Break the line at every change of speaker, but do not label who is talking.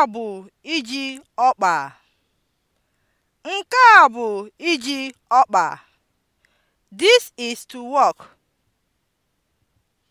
a bụ iji ọkpa. Nke a bụ iji ọkpa. This is to work.